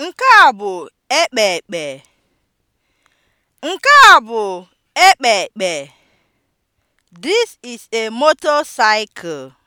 Nke a bụ ekpekpe, Nke a bụ ekpekpe. This is a motorcycle.